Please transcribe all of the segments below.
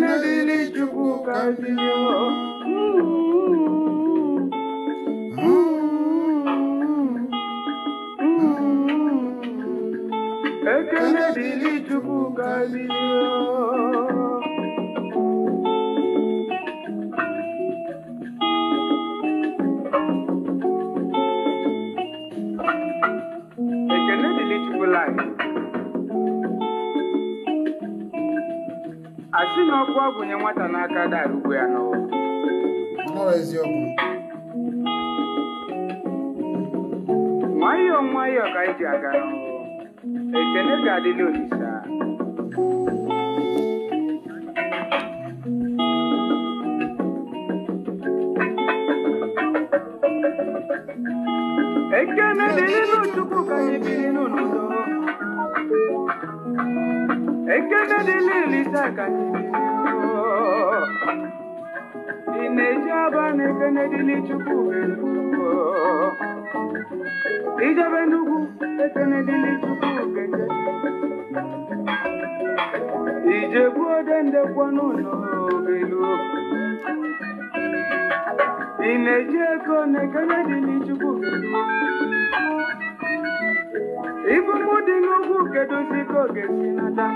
Ekene dili chukwu ka bilio. y'all didn't know this, sir. Ekene dele no chuku lisa kanye bile no. Ineja ne kene dili chuku bile no. Ija benugu ekene dili na ị na-eji ego na-ekenye dị n'Ichukwu ibumu dị n'ugwu kedozi si nata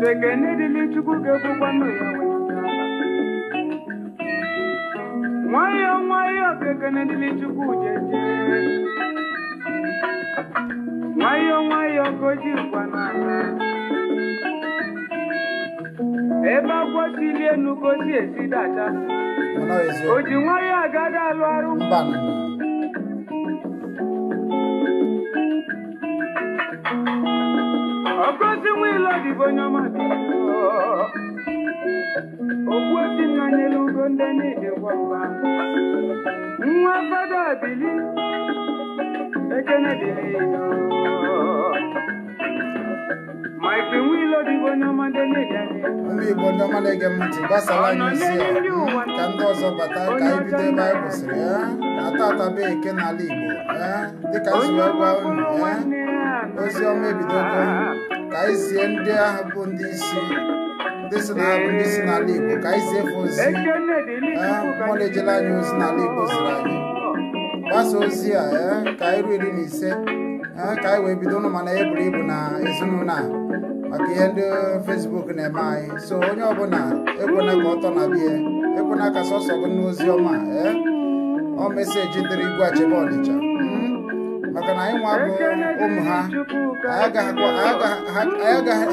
sekene dị n'Ichukwu ga-ekwukwanụ ya nwayọọ nwayọọ dị nwayọọ nwayọọ goji kwana ebe agwọ tili enu gozi esi dada o ji nwayọọ agada alụ arụ ọgozi nwilo dịbụ onye ọma okwu esi nnanyelu ugo ndị na-edekwa mba nwa fada bili ndị Igbo ndị ọma na-ege m ntị gbasara anyị isi a ka ndị ọzọ bata ka anyị bido ebe anyị kwụsịrị ya na-ata ataba n'ala Igbo dịka zuru gwa unu ozi ọma ebidogo ka anyị zie ndị ahụ bụ ndị isi ndị si na-abụ ndị si n'ala Igbo ka anyị zie efe ozi ha mụna ejela anyị ozi n'ala Igbo ziri anyị gbasa ozi a eh, ka anyị ruo iri na ise eh, ka anyị wee bido ụnụ mana ya buru ibu na ezinụlọ a maka ihe ndị fesbuk na-eme anyị so onye ọbụla ekwena ka ọtọ na bie ekwena ka sọsọ gị n'ozi ọma eh, ọ meseji dịrị igwe achebe ọnịcha hmm? maka na anyị nwa bụ ụmụ ha anyị agaghị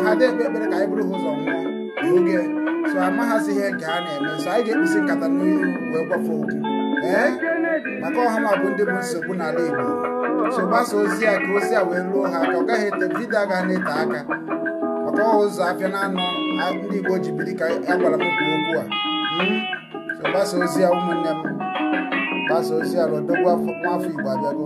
ha ekpe ekpere ka anyị bụrụ ha ụzọ nwụọ n'oge so amaghazị ihe nke ha na-eme so anyị ga-ekpesi nkata n'ihu wee gwafe okwu ee maka ọha bụ ndị bụ nsogbu n'ala Igbo so ozi a ka ozi a wee ruo ha ka ọ gaghị ete vidio agaghị na-ete aka maka ọha ụzọ afịa na-anọ ndị Igbo ji biri ka a gwara m kwuo okwu a hmm? so gbasa ozi a ụmụnne m gbasa ozi a rodogwu nwafọ Igbo abịago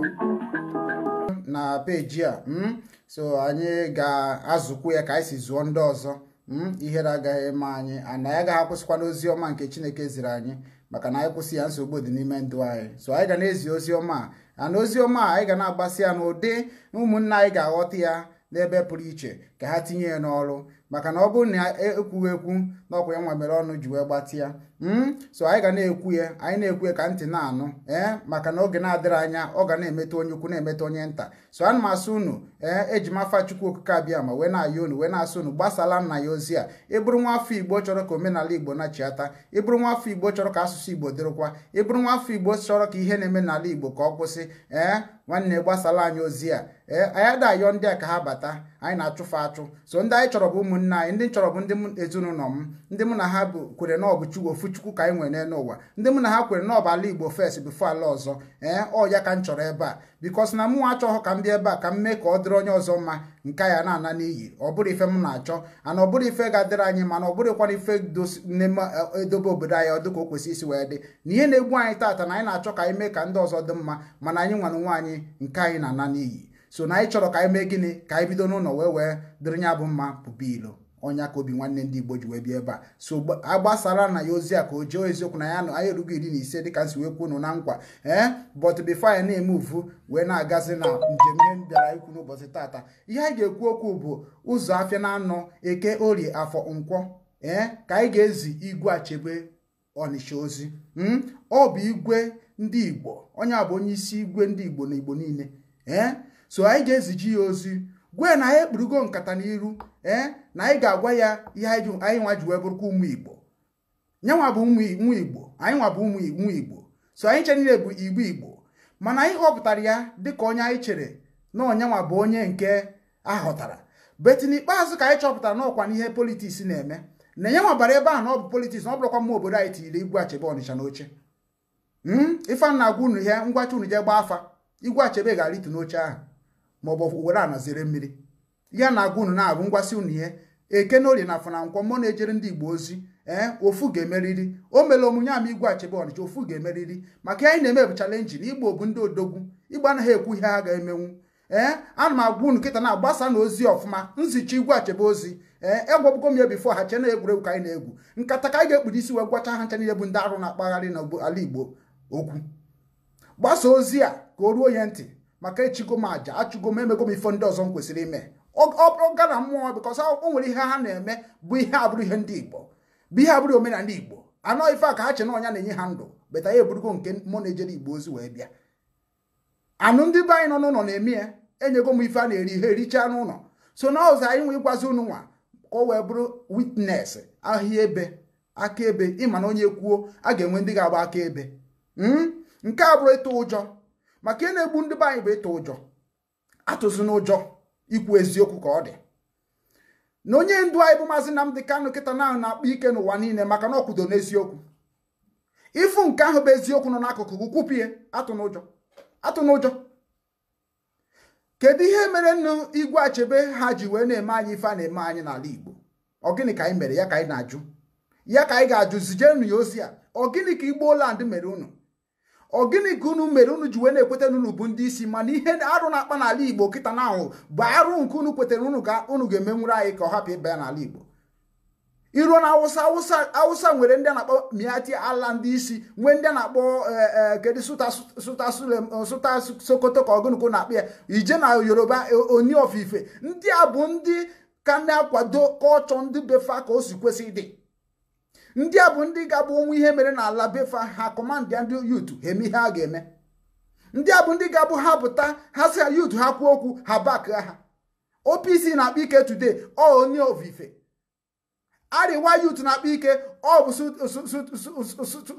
na peji a hmm? so anyị ga-azụkwu ya ka anyị si zụọ ndị ọzọ hmm? ihere agaghị eme anyị ana ya gaghị akwụsịkwa n'ozi ọma nke Chineke ziri anyị maka na anyị kwụsị ya nsogbu dị n'ime ndụ anyị so anyị ga na-ezi ozi ọma a na ozi ọma anyị ga na-agbasi ya n'ụdị ụmụnna anyị ga-aghọta ya n'ebe pụrụ iche ka ha tinye ya n'ọrụ maka na ọ bụrụ na ekwughị ekwu na ọkwa ya nwa mere ọnụ ji wee gbatị ya hmm? so anyị ga na-ekwu ya anyị na-ekwu ya ka ntị na-anụ ee eh? maka na oge na-adịrị anya ọ ga na emeta onye ukwu na emeta onye nta so ana m asụ unu ee eh? eji m afa chukwu okike abịa ma wee na ayị unu wee na-asụ unu gbasala nna ya ozi a ịbụrụ nwa afọ igbo chọrọ ka omenala igbo nachiata ịbụrụ nwa afọ igbo chọrọ ka asụsụ igbo dịrịkwa ịbụrụ nwa afọ igbo chọrọ ka ihe na-eme n'ala igbo ka ọ kwụsị ee eh? nwanne gbasala anyị ozi a ee anyị adayọ ndị a ka ha bata anyị na achụfụ achụ so ndị anyị chọrọ bụ ụmụnne anyị ndị chọrọ bụ ndị ezinụlọ m ndị mụ na ha kwere na ọ Chukwu ofu Chukwu ka anyị nwere n'ụwa ndị mụ na ha kwere na ọ bụ ala Igbo fes bifo ala ọzọ ee ọ ya ka m chọrọ ebe a bikos na mụ achọghị ka m bịa ebe a ka m mee ka ọ dịrị onye ọzọ mma nke ya na-ana n'iyi ọ bụrụ ife m na-achọ ana ọ bụrụ ife ga-adịrị anyị mana ọ bụrụkwana ife e, e, edobe obodo anyị ọdụ ka o kwesị isi wee dị na ihe na-egbu anyị taata na anyị na-achọ ka anyị mee ka ndị ọzọ dị mma mana anyị nwana nwa anyị nke anyị na-ana n'iyi so na anyị chọrọ ka anyị mee gịnị ka anyị bido n'ụlọ wee wee dịrị ya bụ mma pụba ilo ọnya ka obi nwanne ndị igbo ji wee bịa ebe a so agbasara na ya ozi a ka o jee eziokwu na ya nọ anya erugo iri na ise dịka nsi wee na nkwa ee eh, but before na-eme uvu wee na-agazi na njem ihe m bịara ikwu n'ụbọchị tata ihe anyị ga-ekwu okwu bụ ụzọ afịa na anọ eke orie afọ nkwọ ee eh, ka anyị ga-ezi igwe achebe ọnịcha ozi hmm? ọ bụ igwe ndị igbo onye a bụ onye isi igwe ndị igbo na igbo niile ee eh? so anyị ga-eziji ya ozi gwe na ya ekpurugo nkata n'iru ee na anyị ga-agwa ya ihe anyị nwa ji wee bụrụkwa ụmụ igbo nyanwa bụ ụmụ igbo anyị nwa bụ ụmụ igbo so anyị chere niile bụ igbo igbo mana anyị họpụtara ya dịka onye anyị chere na onyenwa bụ onye nke ahọtara beti n'ikpeazụ ka anyị chọpụtara n'ọkwa n'ihe politiks na-eme na enye bara ebe ahụ na ọ bụ politiks na ọ bụrụkwa mma obodo anyị tinyere igwe achebe ọnịcha n'oche ife na hmm? agwa unu ihe ngwacha unu je gbaa afa igwe achebe ga-aritu n'oche ahụ ma ọ a were mmiri ihe na agwa unu na ngwasị unu ihe ekene orie na afọ na mmụọ na-ejere ndị igbo ozi ee eh, ofu ga-emeriri o mere omunye ama igwe achebe ọnịcha ofu ga-emeriri maka anyị na-eme bụ na igbo bụ ndị odogwu ịgba anaghị ekwu ihe a ga-emenwu ee eh, ana m agwa unu kịta na-agbasa na ozi ọfụma nzicha igwe achebe ozi ee eh, egwabugo m ya bifo ha chena egwuregwu ka anyị na-egwu nkata ka anyị ga-ekpuru isi wee gwacha ha ncha niile bụ ndị arụ na-akpagharị n'ala igbo okwu gbasa ozi a ka o ruo ya ntị maka echigo m aja achụgo m emego m ifo ndị ọzọ m kwesịrị ime ọ bụrụ mmụọ bịkọs o nwere ihe ha na-eme bụ ihe abụrụ ihe ndị igbo bụ ihe abụrụ omenala igbo anọ ife a ka ha che na na-enye ha ndụ beta ya eburugo nke mụ na-ejere igbo ozi wee bịa anụ ndị be anyị nọ n'ụlọ na-eme ya enyego m ife a na-eri ihe erichaa n'ụlọ so na ọzọ anyị nwe ịgwazi ụnụ nwa ka o wee bụrụ witness ahịa ebe akaebe ịma na onye kwuo a ga-enwe ndị ga-agba aka ebe. Hmm? nke a bụrụ ịtụ ụjọ maka ihe na-egbu ndị be anyị bụ ịtụ ụjọ atụzi n'ụjọ ikwu eziokwu ka ọ dị na onye ndu anyị bụ maazị Nnamdi Kanu kịta na na-akpa ike n'ụwa niile maka na ọ n'eziokwu ịfụ nke ahụ bụ eziokwu nọ n'akụkụ gị kwupie atụ n'ụjọ atụ n'ụjọ kedu ihe mere nnu Igwe Achebe ha ji wee na-eme anyị ife a na-eme anyị n'ala Igbo ọ gịnị ka anyị mere ya ka anyị na-ajụ ya ka anyị ga-ajụ zijenụ ya ozi a ọ gịnị ka Igbo land mere unu ọ gịnị ka unu mere unu ji wee na-ekweta na bụ ndị isi mana ihe arụ na-akpa n'ala igbo kịta na ahụ bụ arụ nke unu kwetara unu ka unu ga-emenwuru anyị ka ọ hapụ ịba ya n'ala igbo iruo na awụsa awụsa awụsa nwere ndị na-akpọ miati ala ndị isi nwee ndị na-akpọ eh, eh, kedu sụta sokoto ka ọgụnụkụ na-akpọ ya ije na yoruba eh, oni ofife ndị a bụ ndị ka na-akwado kọlchọ ndị befa ka o si kwesị dị ndị a bụ ndị ga-agba ihe mere n'ala befa ha kọmandị ya ndị yutu ha eme ihe a ga-eme ndị a bụ ndị ga-abụ ha pụta ha si yutu ha kwuo okwu ha bak ha OPC na akpụ ike today ọ onye ovife arịwa yutu na akpụ ike ọ bụ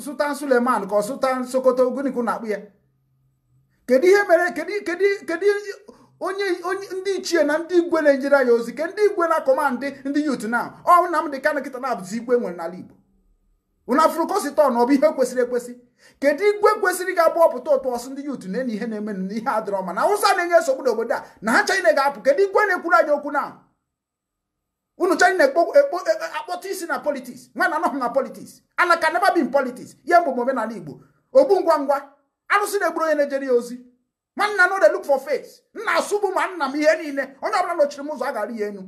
Sultan Suleman ka ọ Sultan Sokoto oguniku na-akpụ ya kedu ihe mere kedu onye ndị ichie na ndị igwe na-enyere ya ozi ke ndị igwe na kọmandị ndị yutu na ọ Nnamdị Kanu kịta na-abụzi igwe nwere n'ala Igbo unu afụrụ kọsitọn ọ bụ ihe kwesịrị ekwesị kedu igwe kwesịrị ga-abụ ọpụta ụtụ ọsụ ndị yutu na-enye ihe na-eme n'ihe adịrọ ma na awụsa na-enye nsogbu obodo a na ha chaịna ga-apụ kedu igwe na-ekwuru anyị okwu na unu chaịna e, e, akpọta isi na politiks nwa na anọghị na politiks ana ka bin politiks ihe mbụ omenala igbo ogbu ngwa ngwa arụsị na-egburu onye na-ejere ya ozi nwanna na dey look for face nna asụbụ ma nna m ihe niile onye ọbụla nọchiri m ụzọ a gara ya enu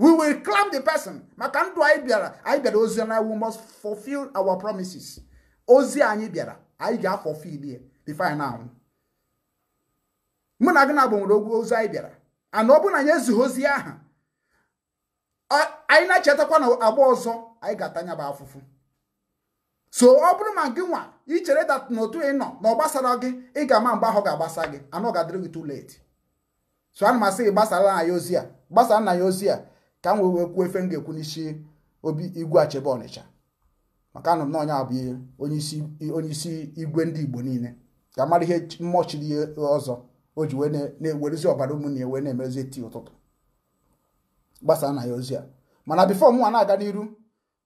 we will clamp the person maka ndụ anyị bịara anyị bịara ozi na we must fulfill our promises ozi anyị bịara anyị ga afọ ya before anyị anwụ mụ na gị na gbanwere ogwu ozi anyị bịara ana ọ bụrụ na anyị ezughị ozi aha anyị na-echetakwa na agba ọzọ anyị ga-atanya bụ afụfụ so ọ bụrụ ma gị nwa ichere dat n'otu ị nọ na ọ gbasara gị ị ga-ama mgbe ahụ ga-agbasa gị anọ ga-adịrị gị too late so ana m asị gị gbasara na ya ozi a gbasara na ya ozi a ka m wee wee kwuo efe m ga-ekwu n'isi obi igwe achebe ọnịcha maka anụ m na onye abụghị onye isi igwe ndị igbo niile ka mara ihe mmọchiri ihe ọzọ o ji wee na-ewerezi ọbara ụmụnne na wee na emezi eti ụtụtụ gbasaa na ya ozi a mana bifo mụnwa na-aga n'iru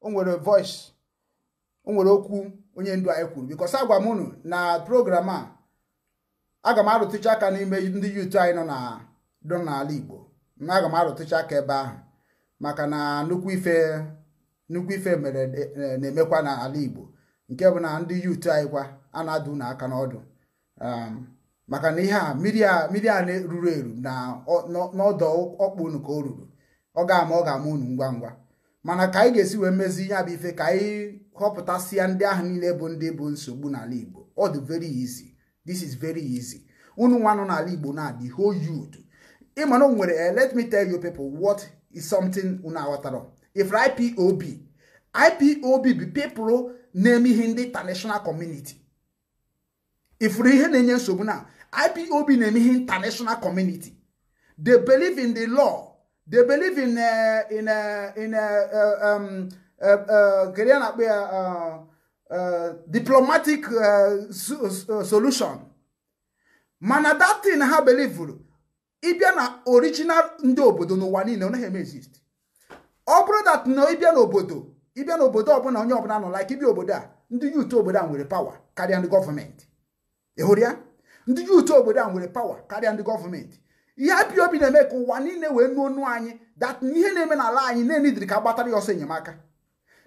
o nwere voice o nwere okwu onye ndu anyị kwuru bikọs agwa m unu na program a aga m arụtụcha aka n'ime ndị yuutu anyị nọ n'ala Igbo na aga m arụtụcha aka ebe ahụ maka na nnukwu ife nnukwu ife mere e, e, na-emekwa n'ala Igbo nke bụ na ndị yut anyị kwa a na-adụ n'ọdụ um, maka na ihe a mmiri a ruru eru na n'ọdọ ọkpụ unu ka o ruru ọ ga-ama ọ ga-ama unu ngwa ngwa mana ka anyị ga-esi wee mezi ihe bụ ife ka anyị họpụtasịa ndị ahụ niile bụ ndị bụ nsogbu n'ala Igbo ọ dị very easy this is very easy unu nwa nọ n'ala Igbo na the whole youth ịma o nwere eh, let me tell you people what is something una aghọtara If ipob ipob bụ pepụrụ na-eme ihe ndị international community ifuru ihe na-enye nsogbu na ipob na-eme ihe international community they believe in the law they believe in a eh, in uh, in uh, um, uh, uh, kedu ya na-akpọ ya diplomatic solution mana that thing ha belivuru ịbịa na original ndị obodo n'ụwa niile ọ eme exist ọ bụrụ dat na ịbịa n'obodo ịbịa n'obodo ọbụla onye ọbụla nọ like ịbịa obodo a ndị yut obodo a nwere pawa karịa ndị gọọmenti ị ya ndị yut obodo a nwere pawa karịa ndị gọọmenti ihe apịa obi na-eme ka ụwa niile wee nuo onu anyị dat na ihe na-eme n'ala anyị na-enidiri ka gbatara ya ọsọ enyemaka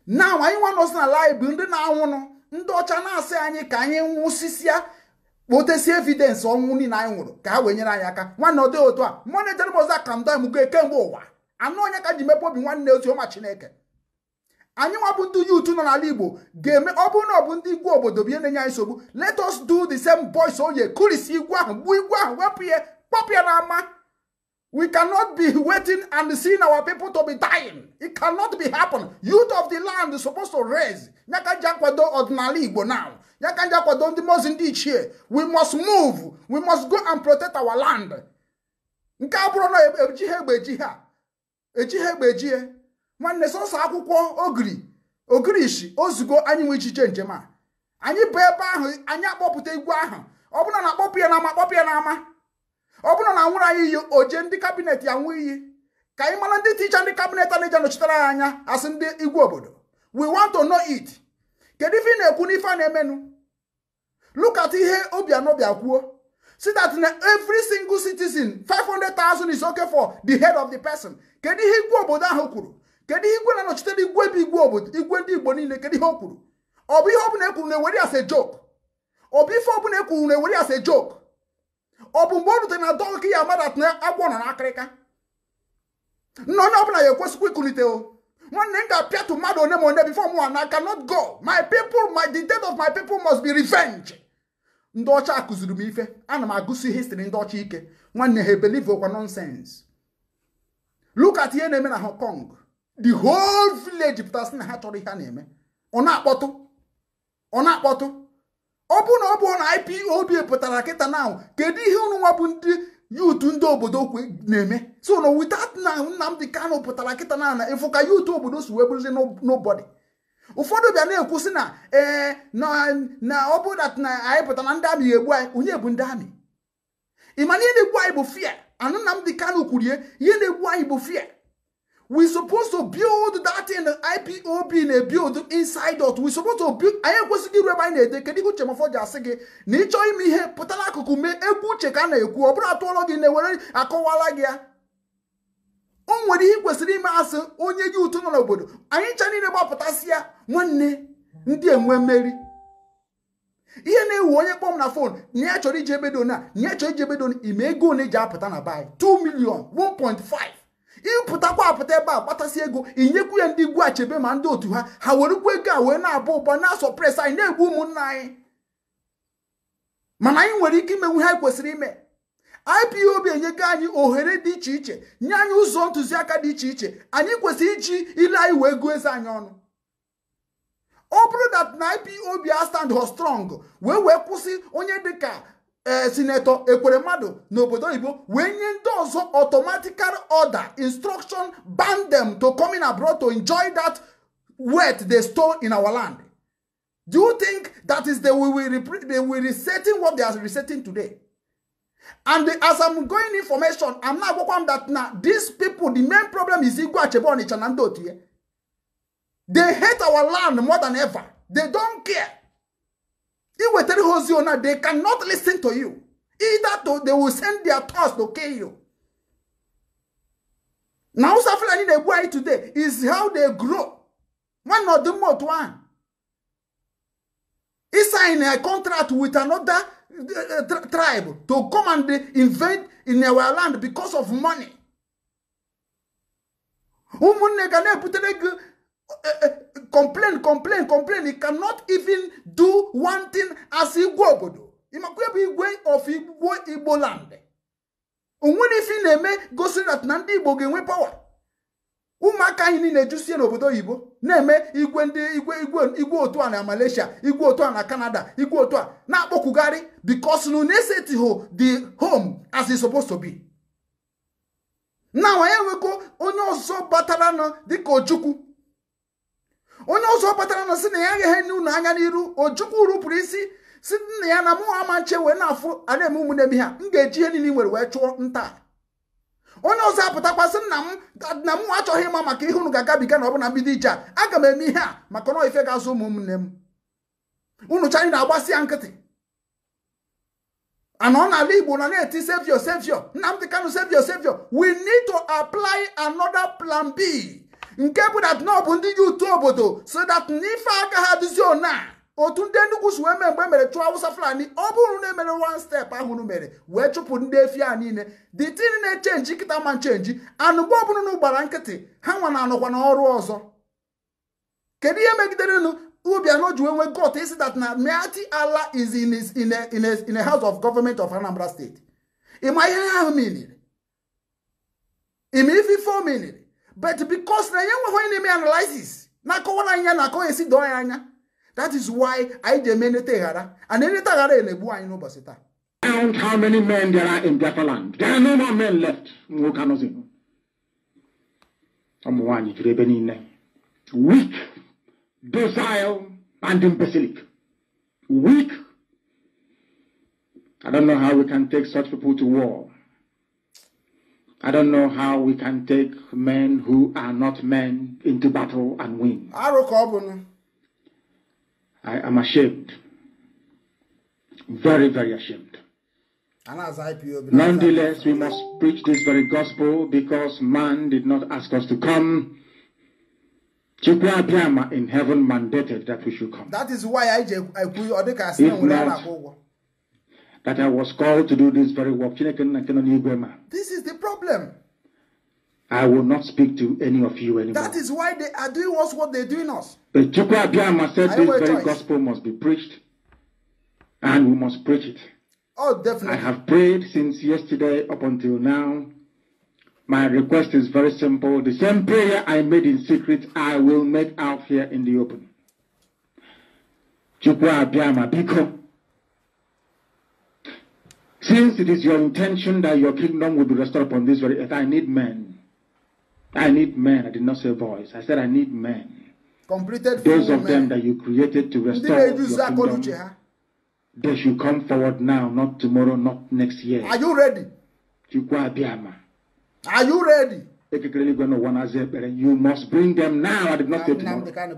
na anyị nwa nọzi n'ala anyị bụ ndị na-anwụnụ ndị ọcha na-asị anyị ka anyị nwụsịsịa kpotesi evidensị ọnwụ niile anyị nwụrụ ka ha wee nyere anyị aka nwanne ọ dịghị otu a mmanụ ejeremọz akando emugo kemgbe ụwa anụ onye ka ji mepe obi nwanne ọma chineke anyị nwa bụ ndị yuutu nọ n'ala igbo ga-eme ọ bụrụ na ọ bụ ndị igwe obodo bụ ihe na-enye anyị nsogbu let us do the same boys oye kurisi igwe ahụ gbuo igwe ahụ wepụ ya kpọpụ ya n'ama We cannot be waiting and seeing our people to be dying. It cannot be happen. Youth of the land is supposed to raise. nyaka kwado ordinary Igbo now. nyaka kwado ndị mozi ndị ichie. We must move. We must go and protect our land. Nke a bụrụ na e- eji ha egbe eji ha. Eji ejie. Nwanne sọsọ akwụkwọ ogiri. Ogiri ozugbo ozugo anyị nwe ichiche njem a. Anyị bụ ebe ahụ anyị akpọpụta igwe ahụ. Ọ bụla na akpọpụ ya n'ama akpọpụ ya n'ama. ọ bụrụ na anwụrụ anyị iyi oje ndị kabinet ya nwee iyi ka anyị mara ndị ticha ndị kabinet a na-eje nọchitere ya anya asị ndị igwe obodo we want to know it kedu ife ị na-ekwu n'ife a na-emenu look at ihe Obianọ bịa kwuo si that na every single citizen 500,000 is okay for the head of the person kedu ihe igwe obodo ahụ kwuru kedu ihe igwe na-anọchitere igwe bụ igwe obodo igwe ndị Igbo niile kedu ihe o kwuru ọ bụ ihe ọbụla ekwuru na-ewere as a joke ọ bụ ife ọbụla ekwuru na-ewere as a joke ọ bụ mgbe ọ rutere na dọnki ya amadat na agwọ nọ n'akịrịka nna onye ọbụla ya ekwesikwa ikulite o nwanne m ga-apịatụ mmadụ one ma one before mụ na I not go my people my the death of my people must be revenge ndị ọcha akụziri m ife ana m agụsi histrị ndị ọcha ike nwanne ha ebelieve okwa nonsens. look at ihe na-eme na Hong Kong the whole village pụtasị na ha chọrọ ihe a na-eme ọ na-akpọtụ ọ na-akpọtụ ọ bụrụ na ọ bụ na IPOB pụtara kịta na kedu ihe ụnụnwa bụ ndị yutu ndị obodo na-eme so na without na Nnamdi kano pụtara kịta na na ịfụka yutu obodo si wee bụrụzi nobody ụfọdụ bịa na-ekwusị na ee na ọ bụrụ na anyị pụtara ndị amị egbu anyị onye bụ ndị amị ịma ihe na-egbu anyị bụ fia anụ Nnamdi kano kwurie ihe na-egbu anyị bụ fia we supposed to build that in IPOB na build inside out we supposed to build anyị ekwesịghị iru ebe anyị na-ede kedu ihe uche mafọ ji asị gị na ịchọ ime ihe pụtara akụkụ mee egwu uche ka a na-ekwu ọ bụrụ atụọlọ gị na-ewere akọwala gị ya o nwere ihe kwesịrị ime asị onye gị ụtụ nọ n'obodo anyị ncha niile gbapụtasị ya nwanne ndị enwe mmeri ihe na-ewu onye kpọm na fon na ya chọrọ iji ebedo na ya chọrọ iji ebedo ime ego one ji apụta na baị 2 million 1.5 ịpụtakwa apụta ebe a kpatasị ego inyekwu ya ndị igwu achebe ma ndị otu ha ha werekwa ego a wee na-abụ ụba na pres anyị na-egbu ụmụnna anyị mana anyị nwere ike imenwu ha kwesịrị ime IPOB enyego anyị ohere dị iche iche nye anyị ụzọ ntụziaka dị iche iche anyị kwesịrị iji ile anyị wee gụọ eze anyị ọnụ ọ bụrụ dat na IPOB a stand strong wee wee kwụsị onye dịka Eh, sinetọ ekwere mmadụ n'obodo oyibo wee nye ndị ọzọ automatical order instruction ban them to come in abroad to enjoy that wealth they stole in our land do you think that is the way we they will resetting what they are resetting today and the, as i'm going information i'm now gwakwa m that na these people the main problem is igwe achebe ọnịcha na ndị otu ya they hate our land more than ever they don't care If you now, they cannot listen to you. Either to, they will send their thoughts to kill you. Now, Safrani, they boy today is how they grow. One of the most one. He signed a contract with another uh, tri tribe to come and invade in our land because of money. complain complain complain he cannot even do one thing as igwe obodo ịmakwa ebe igwe of igbo igbo land onwere na-eme gosiri that na ndị igbo ga-enwe pawa ụmụaka anyị niile ejusie n'obodo oyibo na-eme igwe ndị igwe igwe otu a na malaysia igwe otu a na canada igwe otu a na-akpọkwugharị because na unesetiho the home as supposed to na wanye nweko onye ọzọ batara na dịka ojukwu onye ọzọ batara na si na ya aghaghị enye unu anya n'iru ojukwu rupụrụ isi si nna ya na mụ ama nche wee na-afụ a na-eme ụmụnne ha m ga-eji ihe niile nwere wee chụọ nta onye ọzọ apụtakwasị nna m na mụ achọghị ịma maka ihe unu ga-agabiga na ọ bụ na mbido ije a aga m eme ihe a maka na ife ga-azụ ụmụnne m unu chanyị na-agbasi ya nkịtị anọ n'ala Igbo na na-eti sevio sevio Nnamdị Kanụ sevio sevio we need to apply another plan B nke bụ na nọ bụ ndị ji utu obodo so dat n'ife aka ha dịzio na otu ndị nnukwu si wee mee mgbe e mere chụọ Awụsa Fulani ọ bụrụ na emere one step ahụ mere wee chụpụ ndị efi a niile the tin na-echenji nkịta ma nchenji anụgbo ọbụlụnụ gbara nkịtị ha nwa na anọkwa na ọrụ ọzọ kedu ihe megiderenụ Obiano ji wee nwee got isi that na Meati Ala is in a, in a, in a house of government of Anambra State ịma ihe ahụ miniri ịma ife ife o miniri But because na yenwe ho enemy analysis, na ko wona anya na ko esi don anya. That is why I demand it eh, hara. And any tagara elebu anyi ino basita. Count how many men there are in Biafra land. There are no more men left. Nwoke anọzi. Ụmụ nwaanyị juru ebe Weak, docile, and imbecilic. Weak. I don't know how we can take such people to war. I don't know how we can take men who are not men into battle and win. I am ashamed. Very, very ashamed. Nonetheless, we must preach this very gospel because man did not ask us to come. Chukwu in heaven mandated that we should come. That is why I, I, I, I, I, I, I, I, I, that I was called to do this very work. This is the problem. I will not speak to any of you anymore. That is why they are doing us what they're doing us. The Chukwu Abiyama said this very choice. gospel must be preached, and we must preach it. Oh, definitely. I have prayed since yesterday up until now. My request is very simple. The same prayer I made in secret, I will make out here in the open. Chukwu Abiyama, because since it is your intention that your kingdom will be restored upon this very earth, I need men. I need men. I did not say voice. I said I need men. Completed Those of men. them that you created to restore your kingdom, they should come forward now, not tomorrow, not next year. Are you ready? Are you ready? You must bring them now. I did not say tomorrow.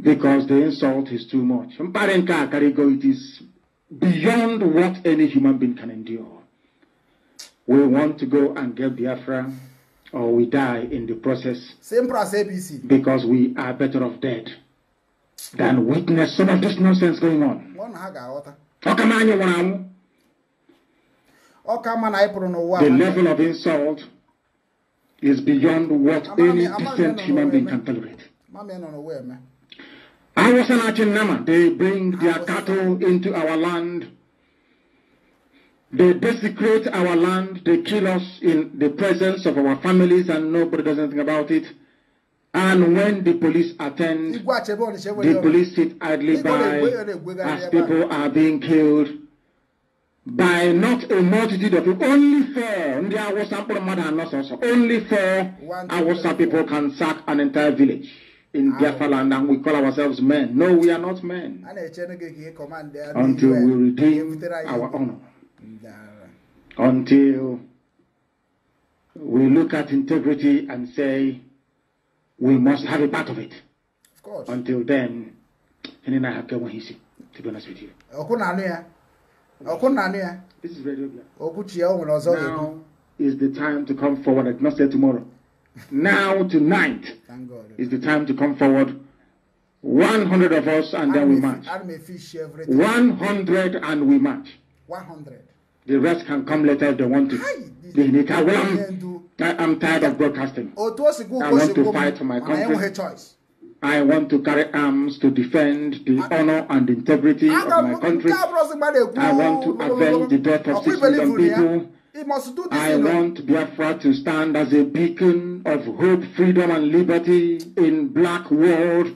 Because the insult is too much. It is beyond what any human being can endure. We want to go and get Biafra or we die in the process. Same process, ABC. Because we are better off dead than witness some of this nonsense going on. The level of insult is beyond what any decent human being can tolerate. They bring their cattle into our land. They desecrate our land. They kill us in the presence of our families, and nobody does anything about it. And when the police attend, the police sit idly by as people are being killed by not a multitude of people. Only four, only four Awasa people can sack an entire village. in Biafra land and we call ourselves men. No, we are not men. Until we redeem our honor. Until we look at integrity and say we must have a part of it. Of course. Until then, and I have to be honest with you. This is very good. Now is the time to come forward and not say tomorrow. Now, tonight is the time to come forward. 100 of us, and then we match. 100 and we match. 100. The rest can come later if they want to. I, am tired of broadcasting. Oh, I want to fight for my country. I want to carry arms to defend the ah. honor and integrity ah, of my country. I want to avenge the death of six million people. He must do this. I want Biafra to stand as a beacon of hope, freedom, and liberty in black world.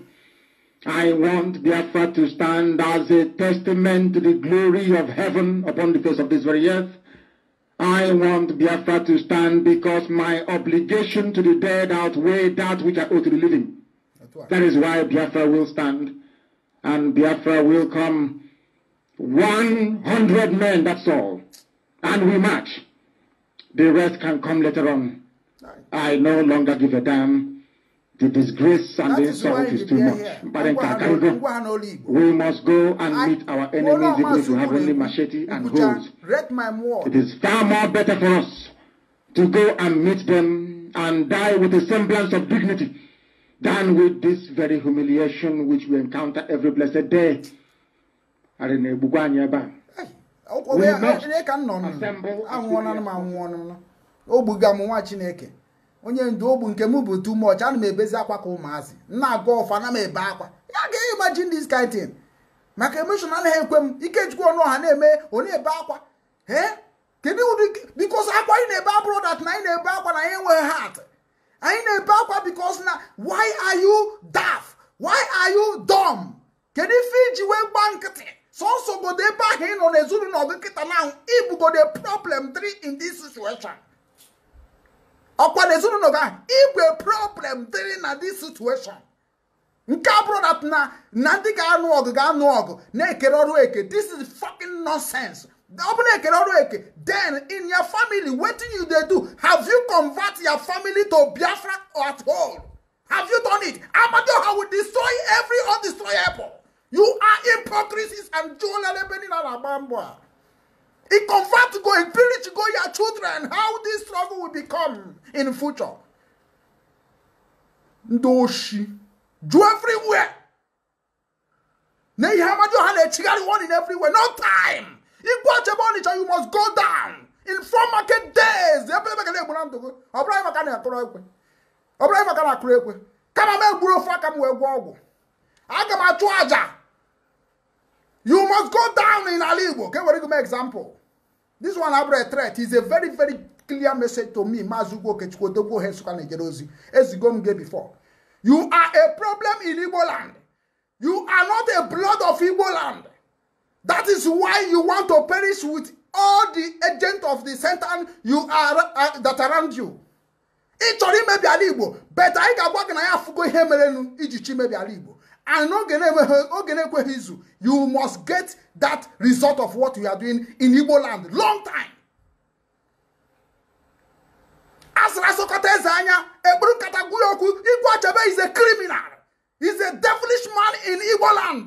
I want Biafra to stand as a testament to the glory of heaven upon the face of this very earth. I want Biafra to stand because my obligation to the dead outweigh that which I owe to the living. That is why Biafra will stand. And Biafra will come 100 men, that's all. And we march. The rest can come later on. I no longer give a damn. The disgrace and that the insult is, is too much. Barenta We must go and I, meet our enemies if we have only machete and hoes. It is far more better for us to go and meet them and die with a semblance of dignity than with this very humiliation which we encounter every blessed day. ka m nọ anwụọnanụ m anwụọnụ m ogbuga m nwa chineke onye ndu ogbu nke m bụ too much ana m ebezi akwa ka ụmụazị nna agụ ọfọ na m ebe akwa ya ga imagine this kind thing maka emotion anaghị ekwe m ikechukwu ọnụ ọha na-eme onye ebe akwa ee kedu ụdị bikos akwa anyị na-ebe abụrụ dat na anyị na-ebe akwa na anyị enweghị hat anyị na-ebe akwa bikos na why are you daft why are you dumb kedu ife iji wee gba nkịtị sọsọ godo ebe ahụ ị nọ n'ezinụlọ gị kịta na ahụ ibugode problem three in this situation ọkwa n'ezinụlọ gị ahụ igwe problem three na this situation nke abụrụ dat na na ndị ga-anụ ọgụ ga-anụ ọgụ na-ekere ọrụ eke this is fucking nonsense ọ bụ ekere ọrụ eke then in your family wetin you dey do have you convert your family to biafra at all have you done it amadiọha will destroy every undestroyable You are hypocrisies and Alabambwa. It convert go, it preach go your children how this trouble will become in future. Ndoshi. Do everywhere. in everywhere. No time. If You must go down. In four market days. Ọbụrụ anyị maka na akụrụ ekwe kama m egburu ofe aka m wee gwọ ọgwụ aga m achụ aja You must go down in Alibo. Okay, what do you give me example? This one Abra threat is a very, very clear message to me. Mazugo Kechkodoko Hesuka Nigerozi. As you gay before. You are a problem in Igbo land. You are not a blood of Igbo land. That is why you want to perish with all the agents of the Satan you are uh, that around you. Ị chọrọ imebi ala Igbo, but anyị ga-agwa gị na ya afụgo ihe mere iji chi mebi ala Igbo and oge na-ekweghị izu you must get that result of what you are doing in igbo land long time asịrị asụkọta eze anya ekpuru nkata gwuru okwu igwe achebe is a criminal is a devilish man in igbo land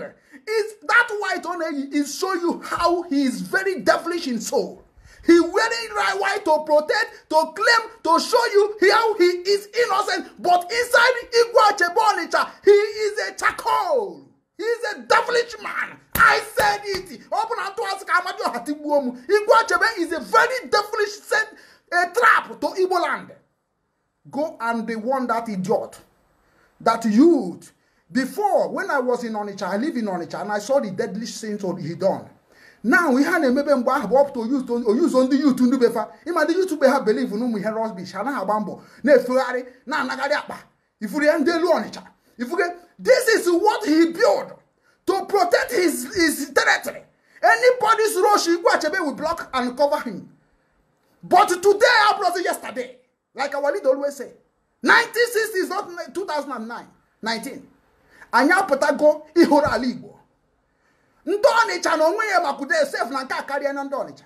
is that white ọ na-eyi is show you how he is very devilish in soul He wearing right white to protect, to claim, to show you how he is innocent. But inside Igwa Chebonicha, he is a charcoal. He is a devilish man. I said it. Open unto us, Kamadio Hatibuomu. Igwa Chebe is a very devilish set a trap to Igbo land. Go and be one that idiot, that youth. Before, when I was in Onitsha, I live in Onitsha, and I saw the deadly sins he done now ihe a na-emebe mgbe ahụ bụ ọpụta oyuzo ndị yuutu ndị befa ịma ndị yuutu be ha beliv na ụmụ ihe rọsbish anaghị agba mbọ na-efegharị na-anagharị akpa ifuru ya ndị elu ọnịcha ifuge this is what he build to protect his, his territory anybody's rush igwe achebe will block and cover him but today abrozi yesterday like our leader always say 1960 is not 2009 19 anyị apụtago ịhụrụ ala igbo ndị ọnịcha na onwe ya makwudo esef na nke a karịa na ndị ọnịcha